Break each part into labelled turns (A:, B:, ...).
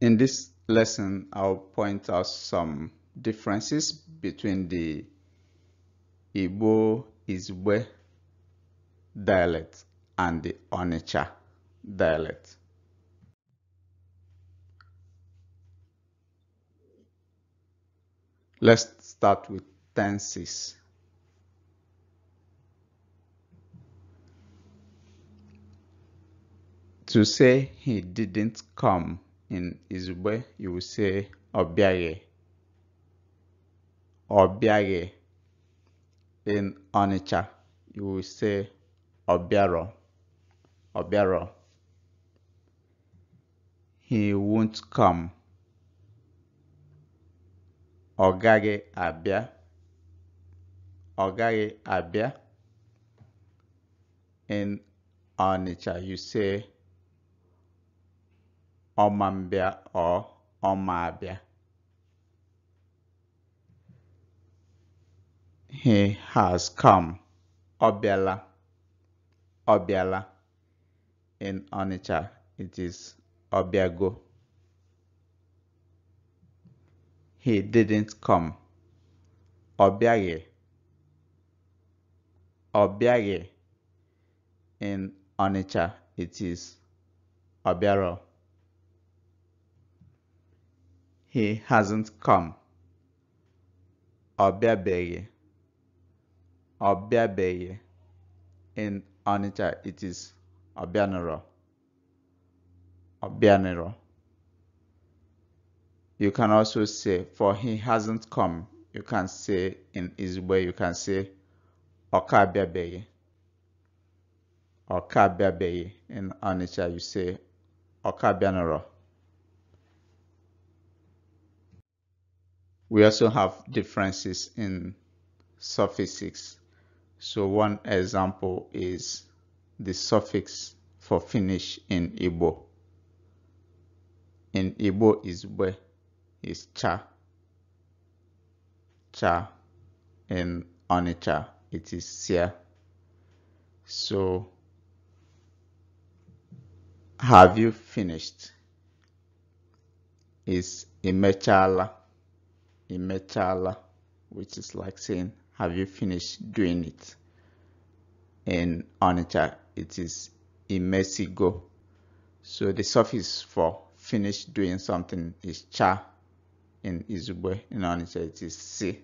A: In this lesson, I'll point out some differences between the Igbo Izwe dialect and the Onitsha dialect. Let's start with tenses. To say he didn't come in Izugbe, you will say Obiage. Obiage. In Onitsha, you will say Obiaro. Obiaro. He won't come. Ogage Abia. Ogage Abia. In Onitsha, you say ọmambịa or ọmabịa he has come ọ bịala ọ bịala in Onitsha it is ọbịago he didn't come ọ bịaghị ọ bịaghị in Onitsha it is ọbịarọ He hasn't come. Obiabeye. Obiabeye. In Onitsha, it is Obianero. Obianero. You can also say, for he hasn't come. You can say in way. you can say Okabiabeye. Okabiabeye. In Onitsha, you say Okabianero. We also have differences in suffixes. So one example is the suffix for Finnish in Igbo. In Igbo is where is cha. Cha. In Onitsha it is sia. So have you finished? Is imechala. In metal, which is like saying, have you finished doing it? In Onitsha, uh, it is imesigo. So the suffix for finished doing something is cha. In Izugbe, in Onitsha, it is si.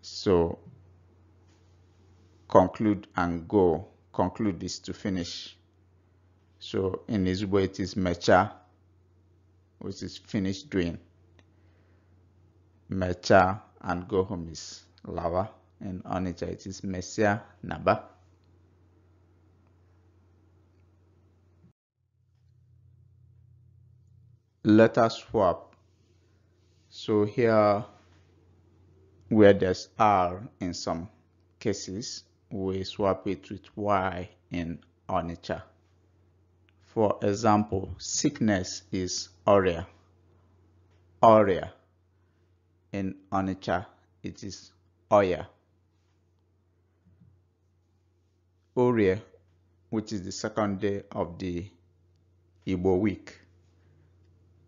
A: So conclude and go. Conclude is to finish. So in Izugbe, it is mecha, which is finished doing. Mecha, and go home is lava, and Onitsha, it is Messiah Naba. Let us swap. So here, where there's R in some cases, we swap it with Y in Onitsha. For example, sickness is Aurea. Aurea in Onitsha, it is Oya. Oria, which is the second day of the Igbo week.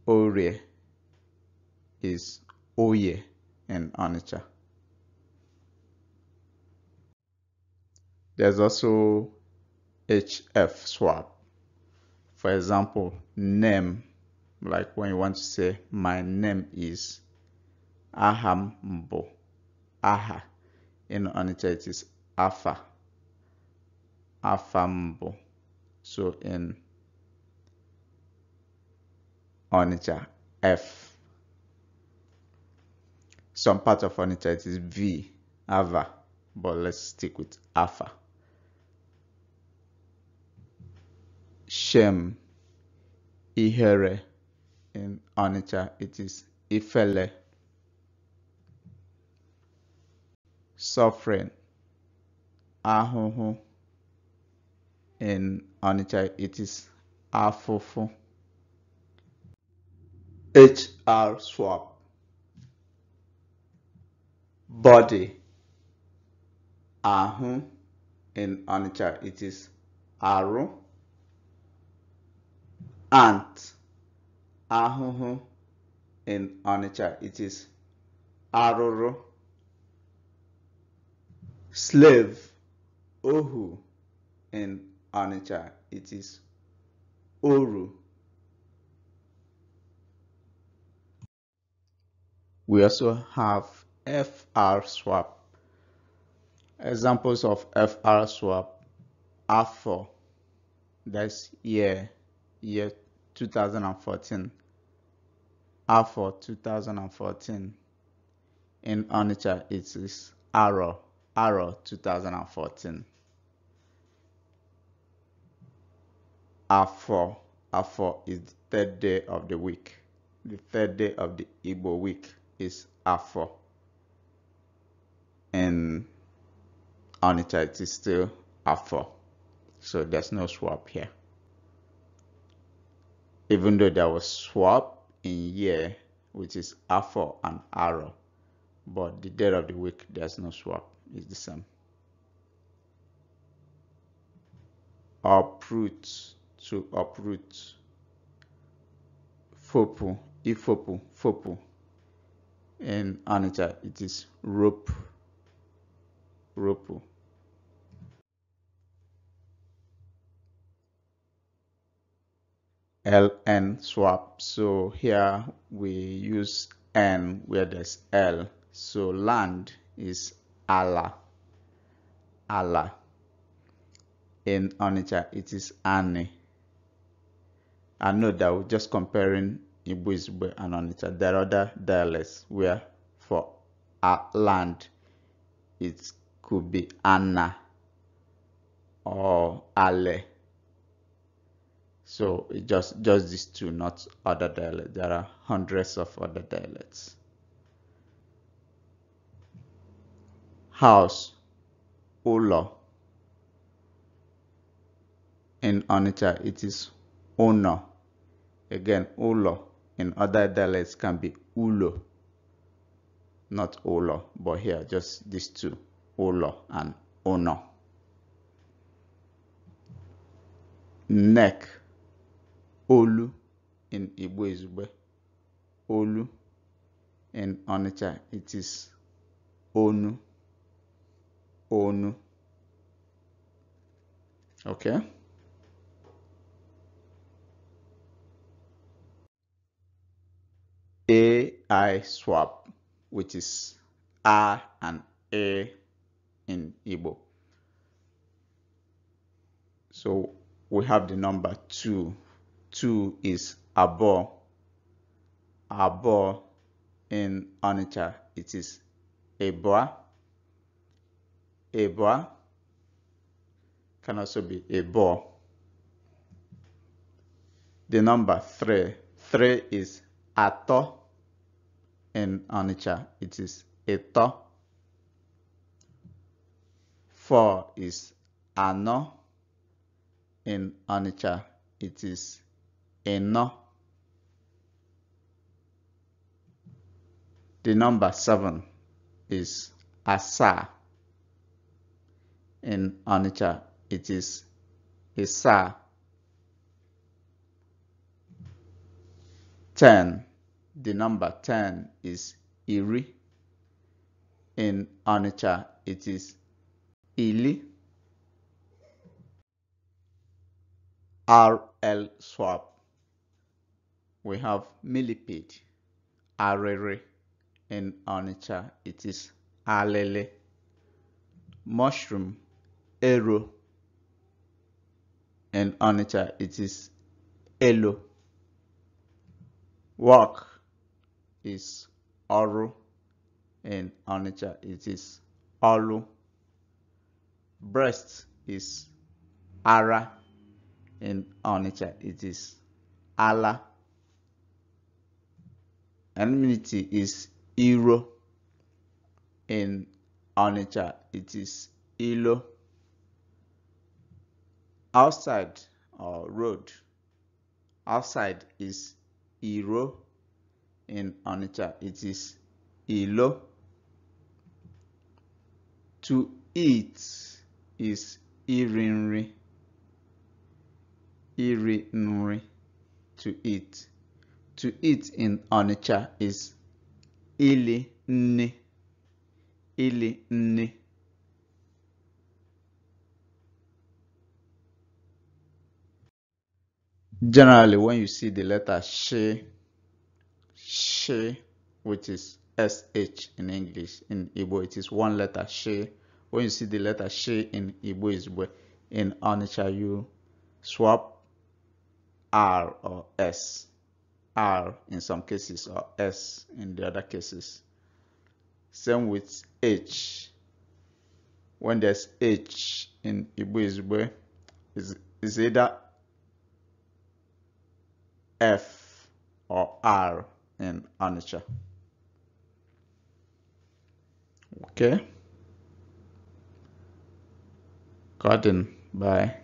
A: Oya is Oye in Onitsha. There's also HF swap. For example, name, like when you want to say, my name is aha m aha in Onitsha it is afa afa so in Onitsha f some part of Onitsha it is v ava but let's stick with afa shem ihere in Onitsha it is ifele suffering, ahụhụ. In onicha it is afụfụ. HR swap. Body. Ahụ. In onicha it is arụ. Ant. Ahụhụ. In onicha it is arụrụ slave, Ohu. In Onitsha, it is Oru. We also have FR swap. Examples of FR swap are for that's year, year 2014. Are for 2014. In Onitsha, it is Arrow. Arrow 2014. Afọ, Afọ is the third day of the week. The third day of the Igbo week is Afọ. And on it, it is still Afọ. So there's no swap here. Even though there was swap in year, which is Afọ and Arrow, but the day of the week, there's no swap is the same. Uproot to uproot. Fopu ifopu fopu. In Anita, it is rope, ropo. ln swap so here we use n where there's l so land is Allah. Allah. In Onitsha, it is Ani. I know that we're just comparing Igbo Izugbe and Onitsha. There are other dialects where for our land it could be Anna or Ale. So just just these two, not other dialects. There are hundreds of other dialects. house, olo, In Onitsha, it is Ono. Again, Ulo in other dialects can be Ulo, not Olo, but here just these two, Olo and Ono. Neck, Olu in Igbo Izube, Olu in Onitsha, it is Onu own okay AI swap which is R and A in Igbo so we have the number 2 2 is above above in Onitsha it is bar a Eboa can also be a Ebo. The number three, three is Ato. In Onitsha, it is Eto. Four is Ano. In Onitsha, it is Eno. The number seven is Asa in Onitsha, it is Isa 10. The number 10 is Iri. In Onitsha, it is Ili. RL swap. We have millipede, arere. In Onitsha, it is alele. Mushroom Arrow And Onitsha, uh, it is Elo. Work is Oru. And Onitsha, uh, it is Olu. Breast is Ara. And Onitsha, uh, it is Allah. Enmity is Iro. and Onitsha, it is Ilo outside or uh, road outside is iro in onitsha it is ilo to eat is irinri, irinri. to eat to eat in onitsha is ili ne, ili ne. Generally, when you see the letter she, she, which is sh in English, in Igbo it is one letter she. When you see the letter she in Igbo is in Onitsha you swap r or s, r in some cases or s in the other cases. Same with h. When there's h in Igbo is it's either F or R in Onitsha. Okay. Garden by